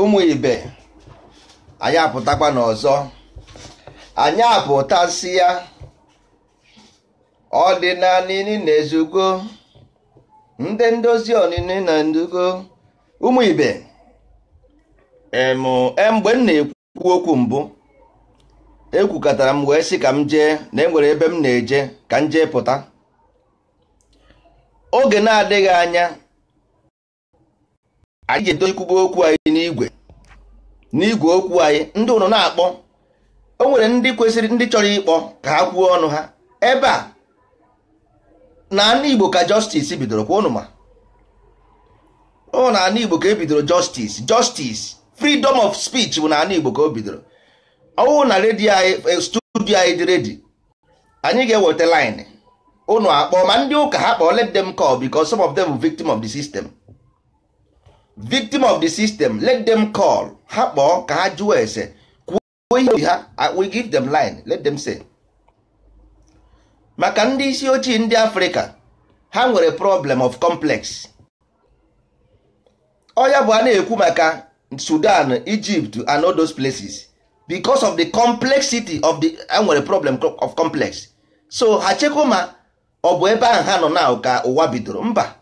ụmụ ibe anyị apụtakwa n'ọzọ anyị apụtasị ya ọdịnala na-ezugo ndị ndozi ọnịnị na ndugo ụmụ ibe e, mgbe m na-ekwu okwu mbụ ekwukọtara m wee sị ka m jee na enwere ebe m na-eje ka m jee pụta oge na-adịghị anya anyị ga-edozikwugo okwu anyị n'igwe n'igwe okwu anyị ndị ụlọ na-akpọ o nwere ndị kwesịrị ndị chọrọ ịkpọ ka ha kwuo ọnụ ha ebe a na ana Igbo ka justice bidoro kwa ụnụma ọ na ana Igbo ka ebidoro justice justice freedom of speech bụ na ana Igbo ka o bidoro ọwụ na redio anyị eh, studio anyị dị redi anyị ga-eweta line ụnụ akpọọ ma ndị ụka ha kpọọ let them call because some of them victim of the system. victim of the system let them call ha kpọọ ka ha jụọ ese kwuo ihe ha we give them line let them say maka ndị isi ochie ndị afrịka ha nwere problem of complex ọya bụ a na-ekwu maka sudan egypt and all those places because of the complexity of the ha nwere problem of complex so ha chekwa ma ọ bụ ebe ahụ ha nọ na ka ụwa bidoro mba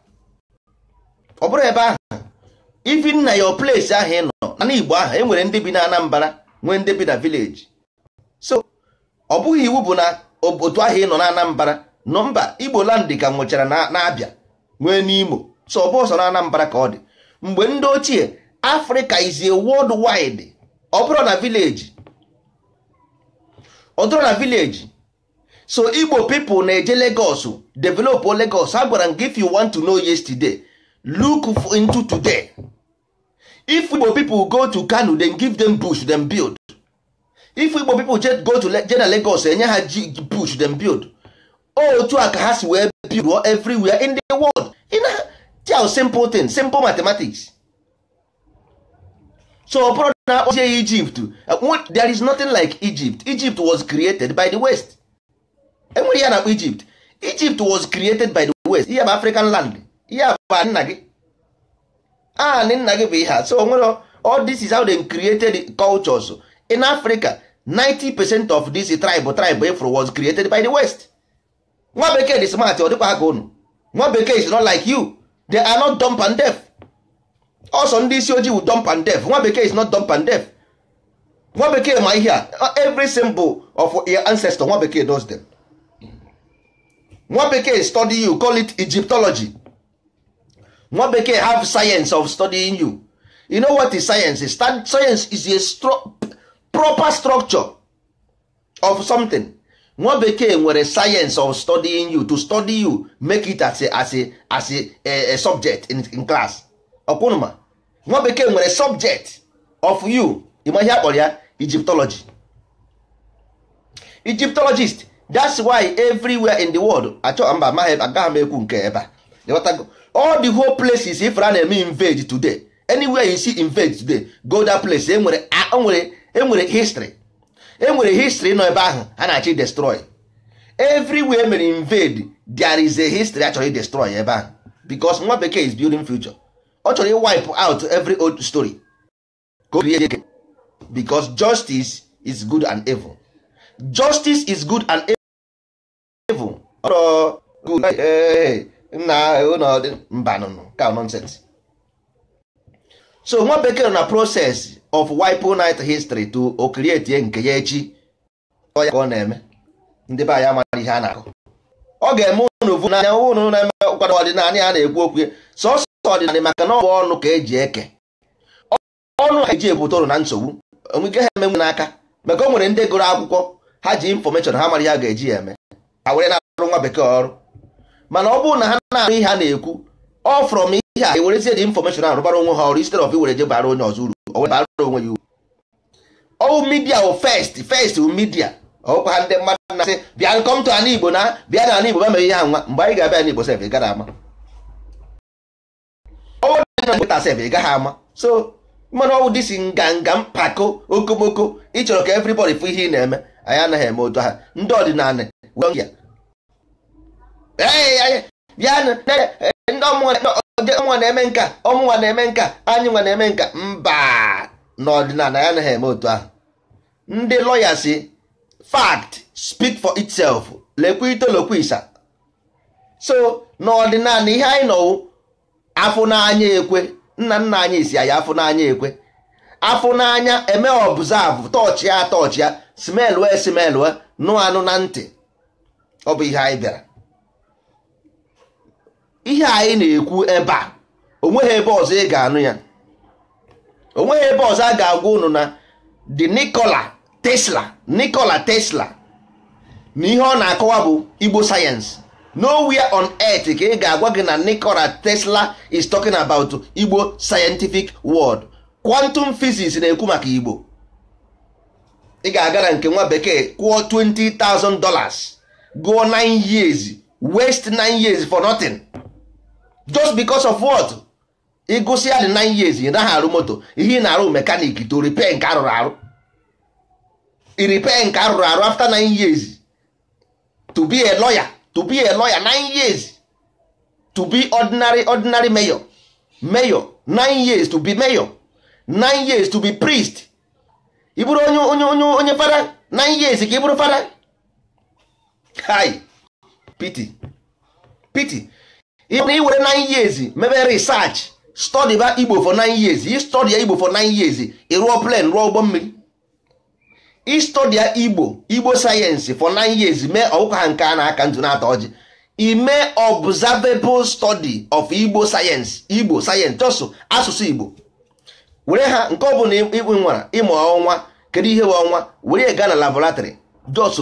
ọ bụrụ ebe ahụ even na your place ahụ ị nọ na n'Igbo ahụ e nwere ndị bi na Anambra nwee ndị bi na village so ọ bụghị iwu bụ na otu ahụ ị nọ na Anambra nọmba Igbo land ka nwụchara na-abịa nwee n'Imo so ọ ọsọ na ka ọ dị mgbe ndị ochie Africa is a world wide ọ bụrụ na village ọ na village so Igbo people na-eje Lagos develop legos a gwara m gị if want to know yesterday today if igbo people go to kano then give them bush them build if igbo people go to jena lagos enye ha bush them build otu a ka ha si wee build everywhere in the world in a tell simple thing simple mathematics so ọbụrụ na akpọzie egypt there is nothing like egypt egypt was created by the west enwere ya na egypt egypt was created by the west ihe bụ african land ihe bụ nna gị anị nna gị bụ ihe a so onwere all this is how they created cultures in Africa 90 percent of this tribe tribe was created by the West nwa bekee dị smart ọ dịkwa ha unu nwa bekee is not like you they are not dumb and deaf ọsọ ndị isi ojii wu dumb and deaf nwa bekee is not dumb and deaf nwa bekee ma ihe a every symbol of your ancestor nwa bekee does them nwa bekee study you call it Egyptology nwa bekee have science of studying you you know what is science is science is a stru proper structure of something nwa bekee nwere science of studying you to study you make it as a, as a, as a, a, a subject in, in class ọkwụnụma nwa bekee nwere subject of you ịma ihe akpọrọ ya egyptology egyptologist that's why everywhere in the world achọ mba m ekwu nke ebe a all the whole places if a na-eme invade today anywhere you see invade today go that place enwere e enwere history enwere history nọ ebe ahụ a na-achọ destroy everywhere mere invade there is a history a destroy ebe ahụ because nwa bekee is building future ọ chọrọ wipe out every old story because justice is good and evil justice is good and evil. good nna ụlọ mba nụnụ. ka nonsense so nwa bekee na process of wipe night history to o nke ya echi ọ ya ka ọ na-eme ndị be anyị amara ihe a na-akụ ọ ga-eme ụnụ vu n'anya ụnụ na-eme ụkwado ọdịnala ya na-ekwu okwu sọsọ ọdịnala maka na ọ bụ ọnụ ka eji eke ọnụ ha eji ebute ụrụ na nsogbu onwike ha emenwe n'aka maka o nwere ndị gụrụ akwụkwọ ha ji infọmeshọn ha mara ya ga-eji ya eme ha were na-arụ nwa bekee ọrụ mana ọ bụrụ na ha na-arụ ihe a na-ekwu ọ frọm ihe a ewerezie dị infọmeshọn ahụ rụbara onwe ha ọrụ instead of iwere je bara onye ọzọ uru bara onwe ya uru ọwụ midia wụ first first midia ọkwa ndị mmadụ na-asị bịa nkọmtụ ala igbo na bịa na ala igbo ma mee ihe ha nwa mgbe anyị ga-abịa Igbo sef ị gaghị ama ọwụ dị na nkịta sef ị gaghị ama so mmanụ ọwụ dịsi nganga mpako okomoko ịchọrọ ka everybody fụ ihe ị na-eme anyị anaghị eme otu ha ndị ọdịnala wee bịanụ eh, ndị na-eme nka ọmụnwa na-eme nka anyị nwa na-eme nka mba n'ọdịnala ya anaghị eme otu ahụ ndị lọya si fact speak for itself lekwa itolokwisa so n'ọdịnala ihe anyị nọwụ afụnanya n'anya ekwe nna nna anyị si anyị afụ n'anya ekwe afụ n'anya eme ọbụzavụ toch ya tọọchị ya smel wee smel nụ anụ na ntị ọ bụ ihe anyị bịara ihe anyị na-ekwu ebe a onweghị ebe ọzọ ị ga-anụ ya onweghị ebe ọzọ a ga-agwa unu na the Nikola Tesla Nikola Tesla na ihe ọ na-akọwa bụ Igbo sayensị nowhere on earth ka ị ga-agwa gị na Nikola Tesla is talking about Igbo scientific world quantum physics na-ekwu maka Igbo ị ga-aga na nke nwa bekee kwụọ $20,000 gụọ 9 years waste 9 years for nothing. just because of what ịgụsịa dị 9 years ị naghị arụ moto ihe ị na-arụ mekanik to repair nke arụrụ arụ i repair nke arụrụ arụ after 9 years to be a lawyer to be a lawyer 9 years to be ordinary ordinary mayor mayor 9 years to be mayor 9 years to be priest i bụrụ onye onye onye onye fara 9 years ka ị bụrụ fara hi pity pity ịbụna iwere 9 years mebe research study ba igbo for nine years i study igbo for nine years ị rụọ plan rụọ ụgbọ mmiri i study igbo igbo sayensị for nine years mee ọkụkọ ha nke a na-aka ntụ na atọ ọjị ime observable study of igbo sayensị igbo sayensị chọsụ asụsụ igbo were ha nke ọ bụla ịkpụ nwara ịmụ ọnwa kedu ihe bụ ọnwa were gaa na laboratory just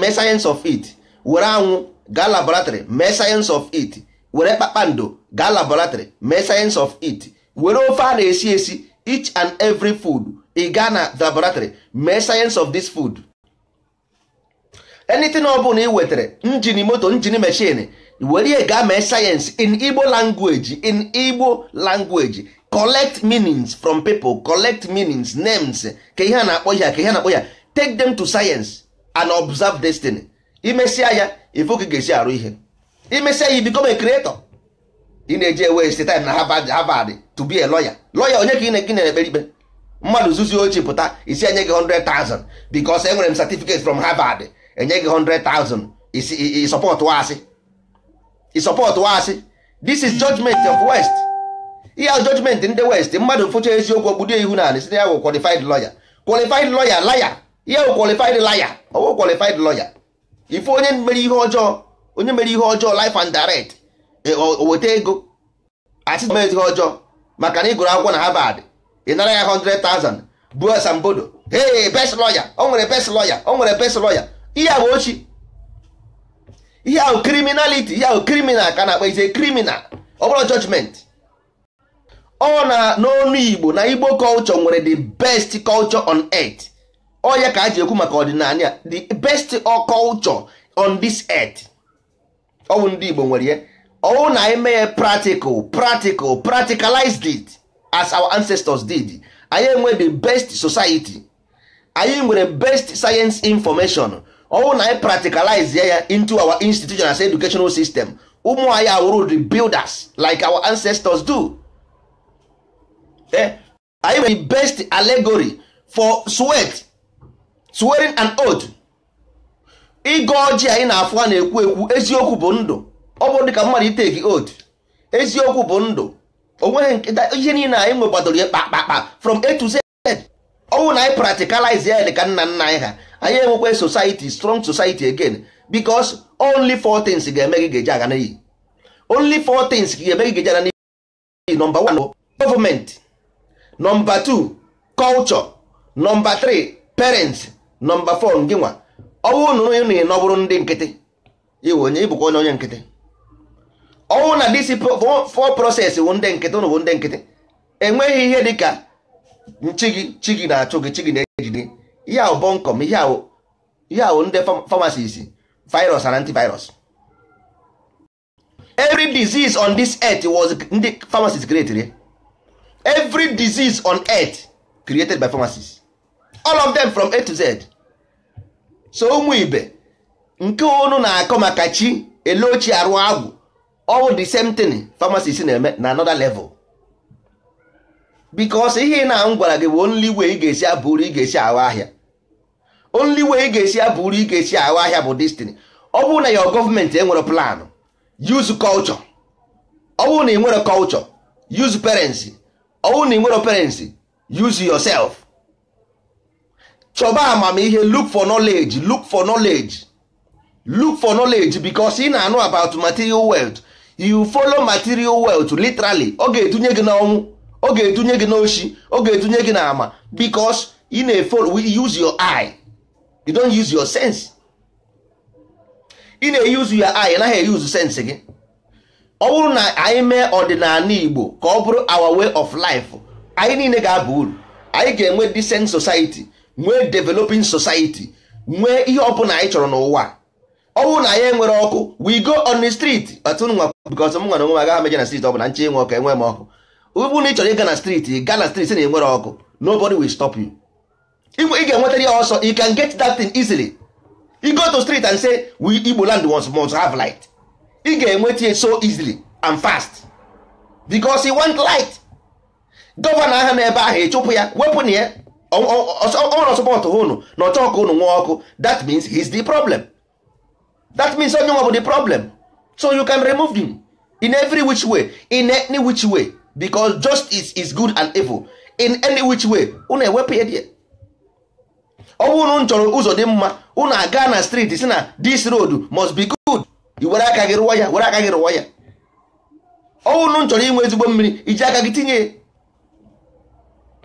mee sayensị of it were anwụ gaa laboratory mee sayensị of it were kpakpando gaa laboratory mee science of it were ofe a na-esi esi each and every food ị gaa na laboratory mee science of this food enitin na ị wetara njin moto njin machine were ihe gaa mee sayensị in Igbo language in Igbo language collect meanings from people collect meanings names ka ihe na-akpọ ya ka ihe a na-akpọ ya take them to science and observe destiny imesia ya ifu ka ga-esi arụ ihe say ya become a creator ị na-eji waste time na Harvard Harvard to be a lawyer lawyer onye ka ị na-ekpe na-ekpere ikpe mmadụ zuzu ochi pụta isi enye gị 100,000 because enwere m certificate from Harvard enye gị 100,000 isi support wasị support wasị this is judgment of west ihe judgment ndị west mmadụ mfụcha eziokwu ogbudo ihu na site ya bụ qualified lawyer qualified lawyer laya ihe bụ qualified laya ọwụ qualified lawyer ife onye mere ihe ọjọọ onye mere ihe ọjọọ life and direct e, weta ego asị mee ihe ọjọọ maka na ị gụrụ akwụkwọ na Harvard ị nara ya 100,000 buo asambodo hey best lawyer o nwere best lawyer o nwere best lawyer ihe a bụ ochi ihe ahụ criminality ihe ahụ criminal ka na-akpa ise criminal ọ bụla judgment ọ na n'ọnụ Igbo na Igbo culture nwere the best culture on earth ọ ya ka a ji ekwu maka ọdịnala the best culture on this earth ọwụ ndị Igbo nwere ya ọwụ na anyị mee practical practical practicalized it as our ancestors did anyị enwe the best society anyị nwere best science information ọwụ na anyị practicalize ya into our institution as educational system ụmụ anyị awụrụ the builders like our ancestors do eh, anyị nwere the best allegory for sweat swearing an oath ịgọ ọjị anyị na-afụ a na-ekwu ekwu eziokwu bụ ndụ ọ bụrụ ka mmadụ iteki od eziokwu bụ ndụ onweghị ihe niile anyị nwe ya kpakpakpa from a to z ọnwụ na anyị practicalize ya dị ka nna nna anyị ha anyị enwekwa society strong society again because only four things ga-eme gị ga-eji aga n'iyi only four things ga-eme gị ga-eji aga n'iyi number one government nọmba two culture nọmba three parents nọmba four ngịnwa ọnwụ na onye na-enọ bụrụ ndị nkịtị iwe onye ịbụkwa onye onye nkịtị ọnwụ na disi fọ process wụ ndị nkịtị ụnụ bụ ndị nkịtị enweghị ihe dị ka nchi gị chi gị na-achụ gị chi gị na-ejide ihe ahụ bọnkọm ihe ahụ ndị famasis virus and antivirus every disease on this earth was ndị great created every disease on earth created by pharmacie's. all of them from A to Z so ụmụ ibe nke unu na-akọ maka chi ele ochie arụ agwụ ọwụ the same thing pharmacist na-eme na another level because ihe ị na m gwara gị bụ only way ị ga-esi abụrụ ị ga-esi awa ahịa only way ị ga-esi abụrụ ị ga-esi awa ahịa bụ destiny ọ bụrụ na your gọọmenti enwere plan use kọlchọ ọ bụrụ na ị nwere kọlchọ use parents ọ bụrụ na ị nwere parents use yourself chọba amamihe look for knowledge look for knowledge look for knowledge because ị na-anụ about material wealth you follow material wealth literally ọ ga-etunye gị n'ọnwụ ọ ga-etunye gị n'oshi ọ ga-etunye gị n'ama because ị na-efollow use your eye you don't use your sense ị na-eyuzu your eye naghị eyuzu sense gị ọ bụrụ na anyị mee ọdịnala Igbo ka ọ bụrụ our way of life anyị niile ga-aba uru anyị ga-enwe decent society nwee developing society nwee ihe ọbụla anyị chọrọ n'ụwa ọ bụrụ na anyị enwere ọkụ we go on the street Nwa because m nwere onwe m agaghị meje na street ọbụla nche ịnwe ọkụ enwe m ọkụ ụbụ na ị chọrọ ịga na street ga na street na enwere ọkụ nobody will stop you ị ga-enwetara ya ọsọ you can get that thing easily you go to street and say we Igbo land once must have light ị ga-enweta ya so easily and fast because he want light gọvanọ ahụ n'ebe ahụ ịchụpụ ya wepụ na ya ọnwere sọpọtụ ụnụ na ọchọ ọkụ ụnụ nwa ọkụ that means he is the problem that means onye nwa bụ the problem so you can remove him in every which way in any which way because justice is good and evil in any which way Unu ewepụ ya die ọ bụ unu chọrọ ụzọ dị mma unu aga na street si na this road must be good i were aka gị rụwa ya were aka gị rụwa ya ọ bụ unu chọrọ inwe ezigbo mmiri iji aka gị tinye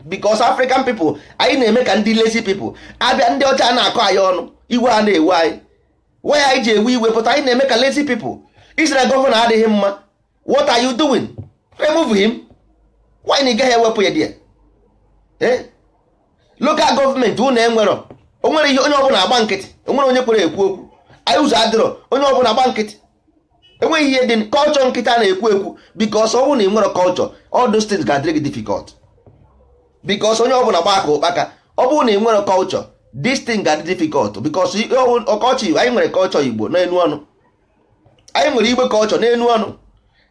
because african people anyị na-eme ka ndị lazy people abịa ndị ọcha na-akọ anyị ọnụ iwe a na-ewe anyị waya anyị ji ewe iwe pụta anyị na-eme ka lazy people isi gọvanọ adịghị mma what are you doing remove him why na ị gaghị ewepụ ya dia eh? local gọọmenti unu enwerọ o nwere ihe onye ọbụla agba nkịtị o nwere onye kwere ekwu okwu anyị ụzọ adịrọ onye ọbụla agba nkịtị enweghị ihe dị kọlchọ nkịta na-ekwu ekwu bikos ọ bụrụ na ị nwere kọlchọ all those things ga-adịrị gị because onye ọbụla gba aka ụkpaka ọ bụrụ na ị nwere culture this thing ga-adị difficult because ọkọchị anyị nwere culture igbo n'enu ọnụ anyị nwere igbe culture n'enu ọnụ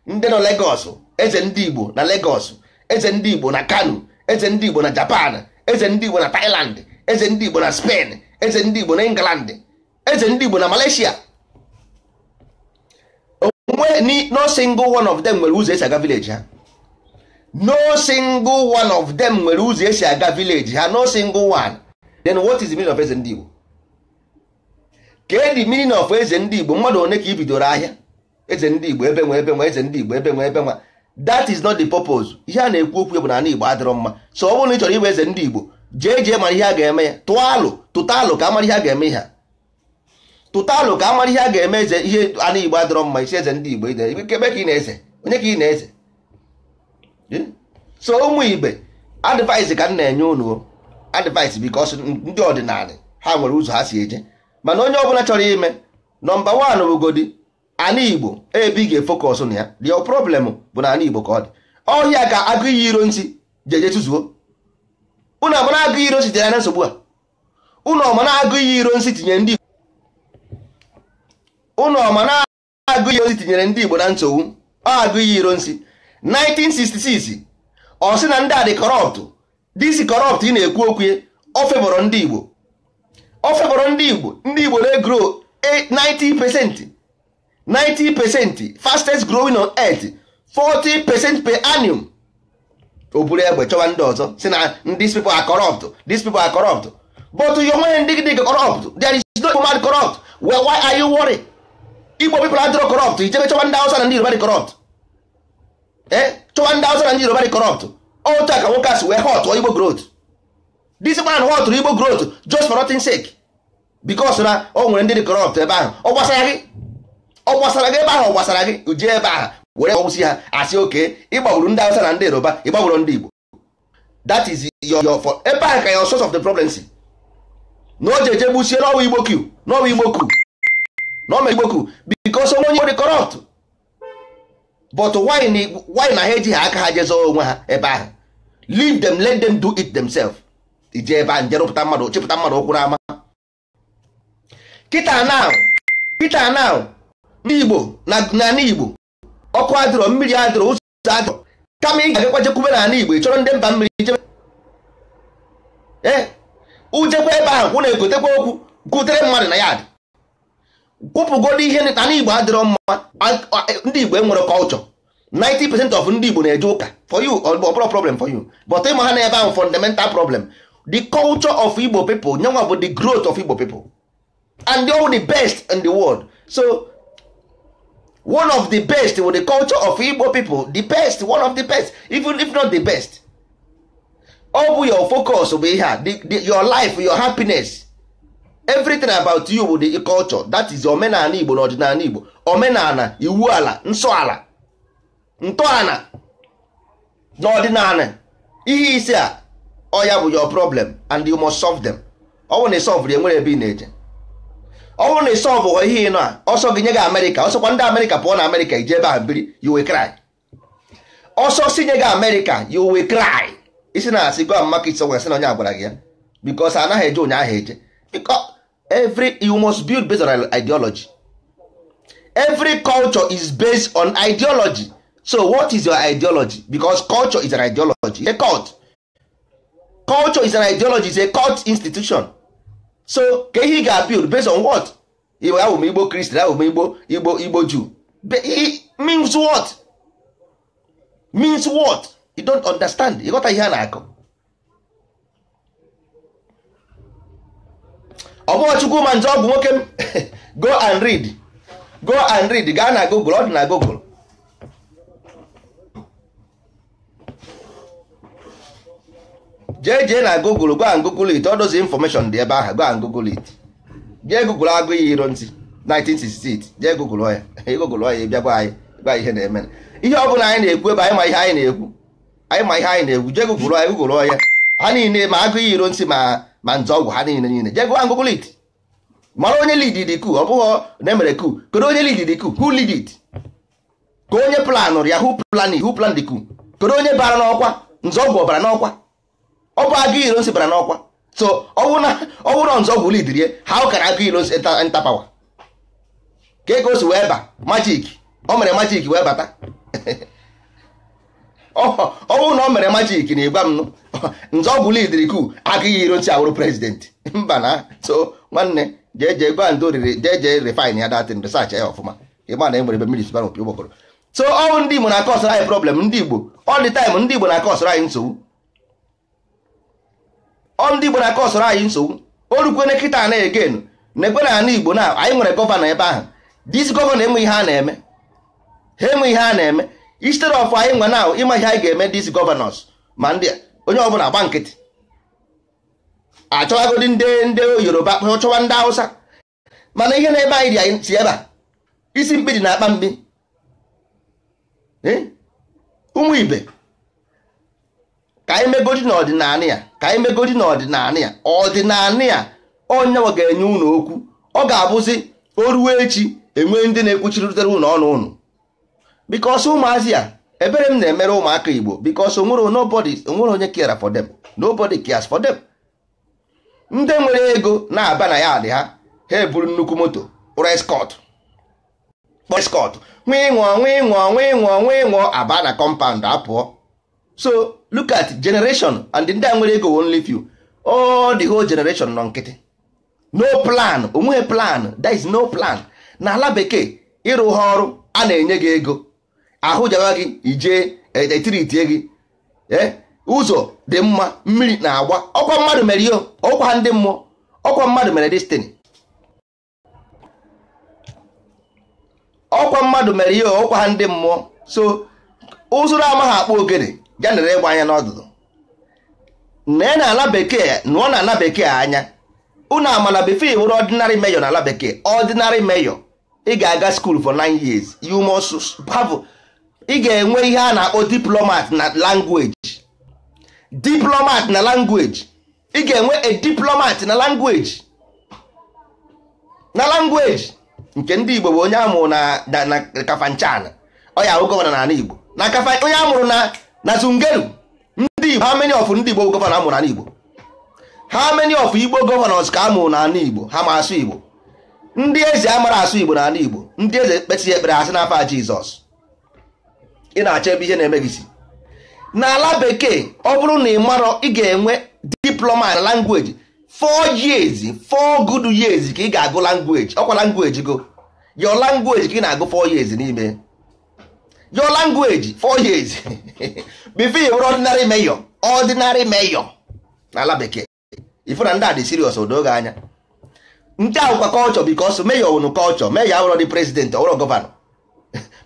ndị nọ legos eze ndị igbo na legos eze ndị igbo na Kano eze ndị igbo na Japan eze ndị igbo na Thailand eze ndị igbo na Spain eze ndị igbo na England eze ndị igbo na Malaysia onwe no single one of them nwere ụzọ esi aga village ha no single one of them nwere ụzọ esi aga village ha no single one then what is the meaning of eze ndị Igbo kee the meaning of eze ndị Igbo mmadụ one ka bidoro ahịa eze ndị Igbo ebe nwe ebe nwe eze ndị Igbo ebe nwe ebe nwa that is not the purpose ihe a na-ekwu okwu bụ na Igbo adịrọ mma so ọ bụrụ na ị chọrọ ịbụ eze ndị Igbo jee jee mara ihe a ga-eme ya tụọ alụ tụta alụ ka amara ihe a ga-eme ihe a tụta alụ ka amara ihe a ga-eme eze ihe ana Igbo adịrọ mma isi eze ndị Igbo ide ebe ka ị na-eze onye ka ị na-eze so ụmụ igbe advice ka m na-enye unu advice because ndị ọdịnala ha nwere ụzọ ha si eje mana onye ọbụla chọrọ ime nọmba wan bụgodi ana igbo ebe ị ga-efokọs na ya dio problem bụ na ana igbo ka ọ dị ọhịa ka agụ iyi iro nsi jeje tụzuo ụnụ amara agụ iro nsi tinyere na nsogbu a unu ọmana agụ iyi iro nsi tinye ndị unu ọmana agụ iyi iro nsi tinyere ndị igbo na nsogbu ọ agụ iyi iro nsi 1966 ọ sị na ndị a dị kọrọpt disi kọrọpt ị na-ekwu okwu ọ febọrọ ndị Igbo ọ ndị Igbo ndị Igbo na-egro 90 90 fastest growing on earth 40 per annum o buru egbe chọwa ndị ọzọ si na these people are corrupt these people are corrupt but you nweghị ndị dị corrupt there is no human corrupt well why are you worried Igbo people adịrọ corrupt ijebe chọwa ndị Hausa na ndị Yoruba dị corrupt chọwa ndị awụsa na ndị yoruba dị corrupt otu a ka nwoke asị wee họtụọ igbo growth disikwana na họtụrụ igbo growth just for nothing sake because na o nwere ndị dị corrupt ebe ahụ ọ gbasara gị ọ gbasara gị ebe ahụ ọ gbasara gị jee ebe ahụ were ọgwụsị ha asị oke ịgbagburu ndị awụsa na ndị yoruba ịgbagburu ndị igbo Dat is your for ebe ahụ ka ya source of the problem si na o jeje gbusie n'ọwa igbo ku n'ọwa igbo q na o mere igbo onwe onye dị corrupt but why na ha ejighị aka ha jezo onwe ha ebe ahụ leave them let them do it themselves ije ebe a njerụpụta mmadụ chịpụta mmadụ ụkwụ n'ama kịta now kịta now ndị Igbo na n'ala Igbo ọkụ adịrọ mmiri adịrọ ụzọ adịrọ kama ị ga-agakwa jekwube n'ala Igbo ị chọrọ ndị mba mmiri jebe ee eh, ujekwa ebe ahụ kwụ na-egotekwa okwu gụtere mmadụ na ya adị kwụpụgodo ihe na igbo adịrọ mma ndị igbo enwere kọlchọ 90% of ndị igbo na-eje ụka for you ọbụrụ problem for you but ịma ha na ahụ fundamental problem the culture of igbo people nyenwa bụ the growth of igbo people and they are the best in the world so one of the best with the culture of igbo people the best one of the best even if not the best ọ bụ your focus bụ ihe a your life your happiness everything about you bụ the culture that is omenala igbo na ọdịnala igbo omenala iwu ala nsọ ala ntọala na ọdịnala ihe isi a ọya bụ your problem and you must solve them ọ bụrụ na ịsọlvụ ya nwere ebe ị na-eje ọ bụrụ na ịsọlvụ ghọ ihe ịnọ a ọsọ gị nye gị amerịka ọsọkwa ndị amerịka pụọ na amerịka ije ebe a biri you will cry ọsọ si nye gị amerịka you will cry isi na asị go and market somewhere sị na onye agwara gị ya because anaghị eje ụnyaahụ eje because every you must build based on ideology every culture is based on ideology so what is your ideology because culture is an ideology it's a cult culture is an ideology is a cult institution so ka ihe ga-build based on what iwe ahụ m igbo Christian, ahụ m igbo igbo igbo jew means what means what you don't understand ịghọta ihe a na-akọ ọ bụghị chukwu ma nze ọgwụ bụ nwoke go and read go and read gaa na google ọ dị na google jee jee na google go and google it all those dị ebe ahụ go and google it jee google agụ ihe iro ntị 1968 jee google ya google ya bịa gwa anyị gwa ihe na-eme ihe ọ bụla anyị na-ekwu ebe anyị ma ihe anyị na-ekwu anyị ma ihe anyị na-ekwu jee google ya google ya ha niile ma agụ ihe iro ntị ma ma nze ọgwụ ha niile niile jee gụwa ngụgụ lid mara onye lid dị ku ọ bụghị na emere ku kedu onye lid dị ku who lead it ka onye planụrụ ya who plan who plan dị ku kedu onye bara n'ọkwa nze ọgwụ ọbara n'ọkwa ọ bụ agụ iro nsi bara n'ọkwa so ọwụrụ nze ọgwụ lid rie ha ụkara agụ iro nsi nta pawa ka ego si wee ba majik o mere majik wee bata ọ bụrụ na ọ mere majik na ịgwa m nze ọ bụ lidiri ku agaghị iro nchi awụrụ prezidenti mba na so nwanne jee jee gwa ndị oriri jee jee refine ya datin resach ya ọfụma ịgba na enwere ebe mmiri sibara opi ụgbọkọrọ so ọnwụ ndị igbo na-akọ anyị problem ndị igbo all the time ndị igbo na-akọ anyị nsogbu ọ ndị igbo na-akọ anyị nsogbu o rukwe na kịta na egen na-ekwe na ana igbo na anyị nwere gọvanọ ebe ahụ dis gọvanọ enwe ihe a na-eme ha enwe ihe a na-eme instead of anyị nwa na ịma ihe anyị ga-eme dis gọvanọs ma ndị onye ọbụla gba nkịtị achọwagodi ndị ndị yoruba chọwa ndị hausa mana ihe na-ebe anyị dị anyị si ebe a isi mkpi dị na akpa mkpi eh? ụmụ ibe ka anyị megodi n'ọdịnala ya ka anyị megodi n'ọdịnala ya ọdịnala ya onyenwe ga-enye ụlọ okwu ọ ga-abụzi o ruo echi enwee ndị na-ekwuchiritere ụlọ ọnụ ụnụ because ụmụazị a ebere m na-emere ụmụaka igbo because onwere onwere onye care for dem nobody cares for them ndị nwere ego na-aba na ya dị ha ha eburu nnukwu moto rescot. escort kpọrọ escort nwee ịṅụọ nwa ịṅụọ nwee ịṅụọ aba na compound apụọ so look at generation and ndị a nwere ego only few all the whole generation nọ nkịtị no plan onweghị plan there is no plan na ala bekee ịrụ ha ọrụ a na-enye gị ego ahụ jawa gị ijee etiritie gị e, ụzọ dị mma mmiri na-agba ọkwa mmadụ mere ihe ọkwa ndị mmụọ ọkwa mmadụ mere destini ọkwa mmadụ mere ihe ọkwa ha ndị mmụọ so ụzụrụ amaghị akpa ogene ya nere ịgba anya n'ọdụdụ nee na ala bekee nụọ na ala bekee anya unu amana before wụrụ ọdịnarị meyọ na ala bekee ọdịnarị meyọ ị ga-aga school for nine years you must have ị ga-enwe ihe a na-akpọ diplomat na language diplomat na language ị ga-enwe a diplomat na language na language nke ndị Igbo bụ onye amụrụ na Kafanchan ọya ahụ gọvanọ n'ala Igbo na kafa onye amụrụ na na Zungeru ndị Igbo how many of ndị Igbo gọvanọ amụrụ ala Igbo how many of Igbo gọvanọs ka amụrụ n'ala Igbo ha ma asụ Igbo ndị eze amara asụ Igbo n'ala Igbo ndị eze kpesịghị ekpere asị na n'afọ Jizọs ị na-achọ ebe ihe na-eme gị si n'ala bekee ọ bụrụ na ị marọ ị ga-enwe diploma na language four years four good years ka ị ga-agụ language ọkwa language go your language ka ị na-agụ four years n'ime your language four years before you were ordinary mayor ordinary mayor n'ala bekee ifu na ndị a dị serious gị anya ndị ahụkwa kọlchọ because mayor wụnụ kọlchọ mayor awụrọ dị president ọwụrọ gọvanọ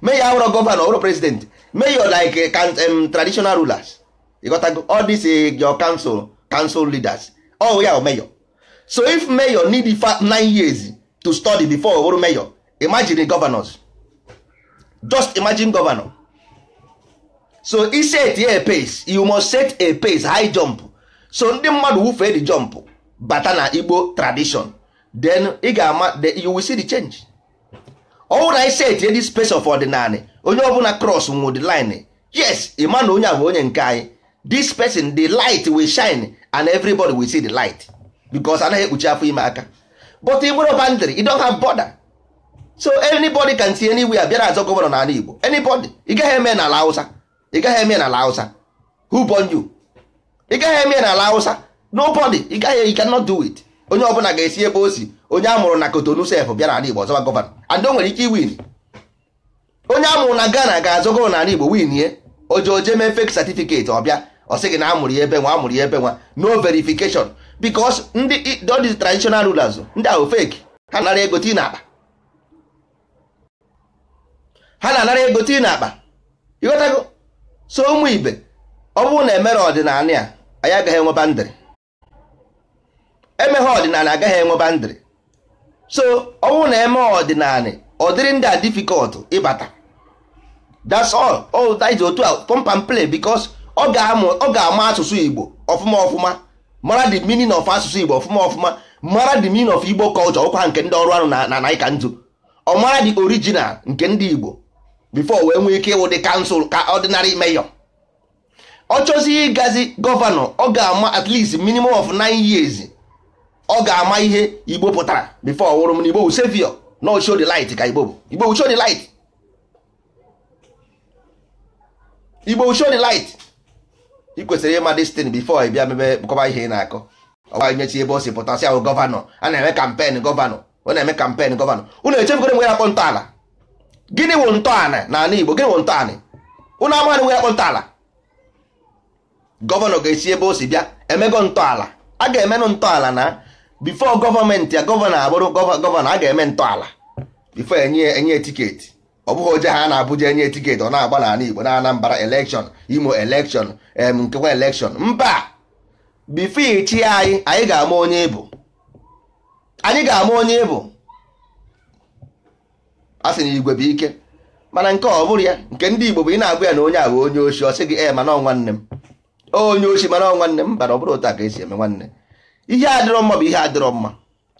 mee ya awụrọ gọvanọ ọrụ president mee ya like eh, um, traditional rulers ịghọtago all this eh, your council council leaders ọ oh, ya oh, mayor so if mayor need nine years to study before ọrụ mayor imagine governors just imagine governor so i set a pace you must set a pace high jump so ndị mmadụ wufee the jump bata na igbo tradition then ị ga-ama you will see the change ọwụ na isi etinye dị space of ordinary onye ọbụla cross nwụ the line yes ịma na onye a bụ onye nke anyị this person the light will shine and everybody will see the light because anaghị ekpuchi afọ ime aka but ị nwere bandịrị you don't have border so anybody can see any anywhere bịara azọ gọvanọ n'ala Igbo anybody ị gaghị eme n'ala Hausa ị gaghị eme n'ala Hausa who born you ị gaghị eme n'ala Hausa nobody ị gaghị you cannot do it onye ọ bụla ga-esi ebe o si onye a mụrụ na Kotonu sef bịa n'ala Igbo ọzọba gọvanọ and o nwere ike win onye a mụrụ na Ghana ga-azọ gọvanọ n'ala Igbo win ye oje oje mee fake certificate ọbịa ọ sị gị na amụrụ ya ebe nwa amụrụ ya ebe nwa no verification because ndị all these rulers ndị ahụ fake ha na-anara ego tii n'akpa ha na-anara ego tii ịghọtago so ụmụ ibe ọ bụrụ na emere ọdịnala a anyị agaghị enwe ndịrị emeghe ọdịnala agaghị enweba ndịrị so ọnwụ na eme ọdịnala ọdịrị ndị a difficult ịbata that's all all that is otu a pump play because ọ ga-ama asụsụ Igbo ọfụma ọfụma mara the meaning of asụsụ Igbo ọfụma ọfụma mara the meaning of Igbo culture ọkwa nke ndị ọrụ anụ na naịka nzu ọ mara the original nke ndị Igbo before wee nwee ike ịwụ dị kansụl ka ordinary mayor ọ chọzi ịgazi gọvanọ ọ ga-ama at least minimum of nine years ọ ga-ama ihe igbo pụtara before ọwụrụ m na igbo bụ savior no show the light ka igbo bụ igbo bụ show the light igbo bụ show the light ị kwesịrị ịma destin before ị bịa mebe kọba ihe ị na-akọ ọgba ebe o si pụta si ahụ gọvanọ a na-eme kampen gọvanọ ọ na-eme kampen gọvanọ unu echebugoro nwe ya akpọ ntọala gịnị wụ ntọala na ala igbo gịnị wụ ntọala unu amaghị nwe ya akpọ ntọala gọvanọ ga-esi ebe o si bịa emego ntọala a ga-emenụ ntọala na bifo gọọmenti ya gọvanọ abụrụ gọvanọ a ga-eme ntọala bifo enye enye tiketi ọ bụghị oje ha na-abụja enye tiketi ọ na-agba n'ala Igbo na anambara elekshon Imo elekshọn em nkewa elekshọn mba bifo ichi anyị anyị ga-ama onye ịbụ anyị ga-ama onye ịbụ a sị na igwe bụ ike mana nke ọ bụrụ ya nke ndị Igbo bụ ị na-agwa ya na onye ahụ onye oshi ọ sị gị e mana ọ nwanne m onye oshi mana ọ nwanne m bara ọ bụrụ otu a ka esi eme nwanne ihe adịrọ mma bụ ihe adịrọ mma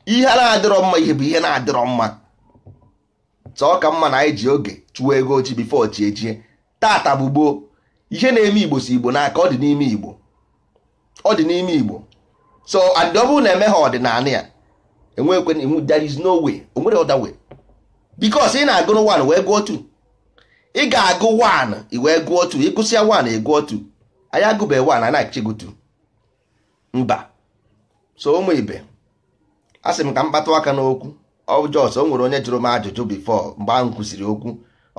ihe na-adịrọ mma ihe bụ ihe na-adịrọ mma sọ ka mma na anyị ji oge chụwa ego ochi bifo chi ejie tata bụ gboo ihe na-eme igbo si igbo n'aka ọ dị n'ime igbo ọ dị n'ime igbo so and ọ bụrụ na eme ha ọdịnala ya enwekwe there is no way o nwere other way because ị na-agụrụ 1 wee gụọ 2 ị ga-agụ 1 ị wee gụọ 2 ịgụsịa 1 ị gụọ 2 anyị agụbeghị 1 anyị na-achịgụ mba so ụmụ ibe a sị m ka m kpatụ aka n'okwu ọjọs o nwere onye jụrụ m ajụjụ bifọ mgbe ahụ kwụsịrị okwu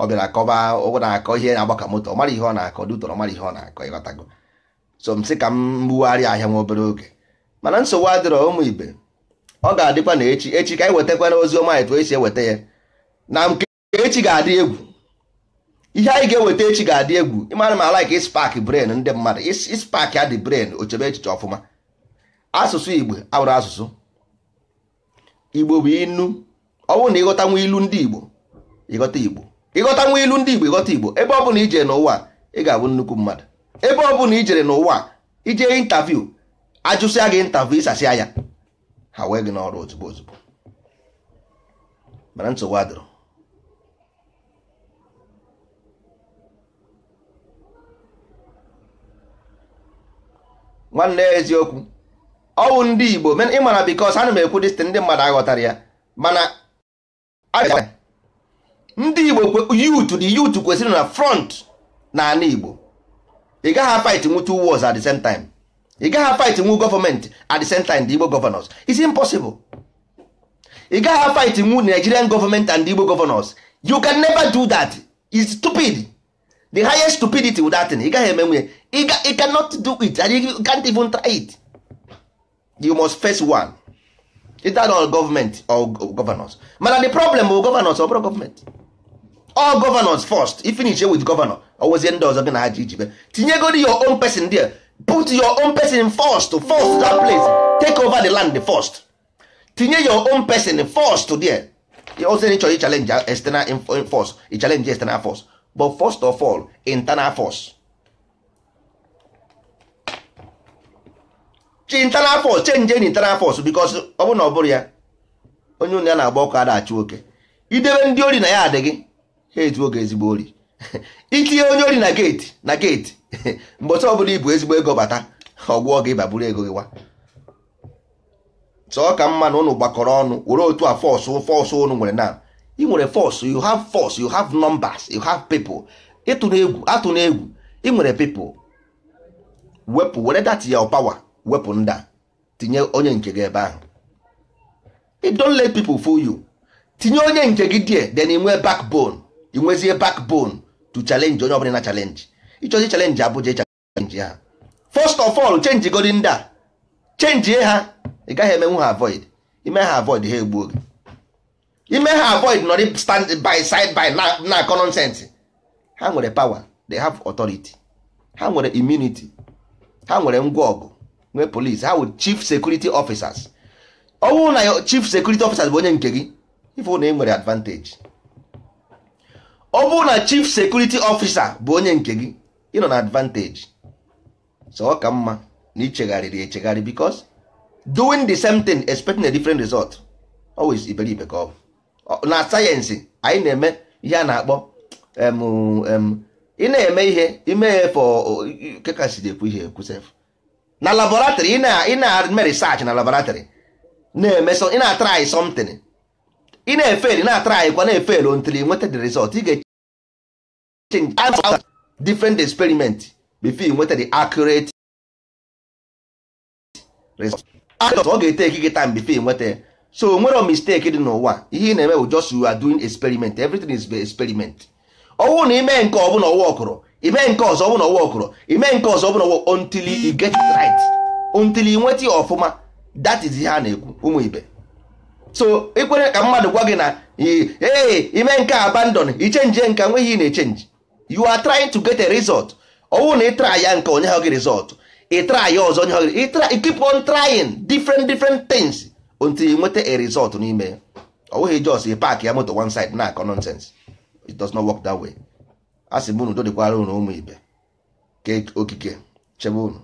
ọ bịara akọba ụgwọ na-akọ ihe na-agbaka moto ọ mara ihe ọ na-akọ dutọrọ mara ihe ọ na-akọ ịghọtago so m sị ka m gbugharịa ahịa nwa obere oge mana nsogbu adịrọ ụmụ ibe ọ ga-adịkwa na echi echi ka anyị na ozi ọma etu esi eweta ya na nke echi ga-adị egwu ihe anyị ga-eweta echi ga-adị egwu ịmara m ala ka ispak bren ndị mmadụ ispak adị bren ochebe echiche ọfụma asụsụ igbo abụrụ asụsụ igbo bụ inu ọ bụrụ na ịghọta nwa ilu ndị igbo ịghọta igbo ịghọta nwa ilu ndị igbo ịghọta igbo ebe ọ bụla ijere n'ụwa ị ga-abụ nnukwu mmadụ ebe ọ bụla ijere n'ụwa ije intaviu ajụsịa gị intaviu ịsasịa ya ha wee gị n'ọrụ ozugbo ozugbo mana nsogbu adịrọ nwanne eziokwu ọwụ ndị igbo ịma na bikos ana m ekwu dịstin ndị mmadụ aghọtara ya mana ndị igbo yutu dị yutu kwesịrị na front na ala igbo ị gaghị fight nwu two wars at the same time ị gaghị fight nwu gọọmenti at the same time the igbo governors it's impossible ị gaghị fight nwu nigerian government and the igbo governors you can never do that it's stupid the highest stupidity with that thing ị gaghị eme nwunye ị cannot do it and you can't even try it you must face one either all government or governors mana the problem bụ governors or government all governors first If you finish with governor was ndị ọzọ gị na ha ji ijibe tinyegodi your own person there put your own person first force that place take over the land first tinye your own person first there need to challenge external force challenge external force but first of all internal force chi internal force change any internal force ọ bụrụ na ọ bụrụ ya onye unu ya na-agba ọkụ adachụ oke idebe ndị ori na ya adị gị ha oge ezigbo ori itinye onye ori na geeti na geeti mgbe ọtọ ọbụla ibu ezigbo ego bata ọgwụọ gị baburu ego gị wa sọ ka mma na ụnụ gbakọrọ ọnụ were otu a fọsụ fọsụ ụnụ nwere na ị nwere fọsụ you have force you hav nọmbas you hav people ịtụ egwu atụ egwu ị nwere people wepụ were ya ọ power wepụ nda tinyere tinye onye nke gị ebe ahụ If don't let people fool you tinye onye nke gị die then inwe backbone inwezie bone to challenge onye ọbụla na challenge ịchọzi challenge abụja challenge ha first of all change godi ndị a chenjie ha ị gaghị emenwu ha avoid ime ha avoid ha egbuo gị ime ha avoid nọrị stand by side by na nonsense ha nwere power they have authority ha nwere immunity ha nwere ngwa ọgụ nwee polis ha wụ chief security officers ọ bụrụ na chief security officers bụ onye nke gị ife na ị nwere advantage ọ bụrụ na chief security officer bụ onye nke gị ị nọ na advantage so ọ ka mma na ichegharịrị echegharị because doing the same thing expecting a different result always iberibe ka ọ bụ na sayensị anyị na-eme ihe a na-akpọ ị na-eme ihe ime ya fọ kekasị ekwu ihe ekwusef na laboratory ị na-eme research na laboratory na-eme ị na try something ị na-efeli na try. kwa na-efeli until you nweta the result ị ga-change different experiment before you nweta the accurate result ọ ga-eteki gị time before you nweta so nwere mistake dị n'ụwa ihe ị na-eme bụ just you are doing experiment everything is experiment ọwụ na ime nke ọbụla ọwụ ọkụrụ ime nke ọzọ bụ na ọwa okoro ime nke ọzọ bụ na ọwa until you get it right until ị nweta ya ọfụma that is ihe a na-ekwu ụmụ ibe so ikwere ka mmadụ gwa gị na ee ime nke abandon ichenji nke nweghị ị na-echenji you are trying to get a result ọwụ na ịtra ya nke onye ha gị result ịtra ya ọzọ onye ha gị keep on trying different different things until ị nweta a result n'ime ya ọwụghị jos park ya moto one side na-akọ nonsense it does not work that way. Asị sị m unu dodịkwara ụmụ ibe ke okike chebe unu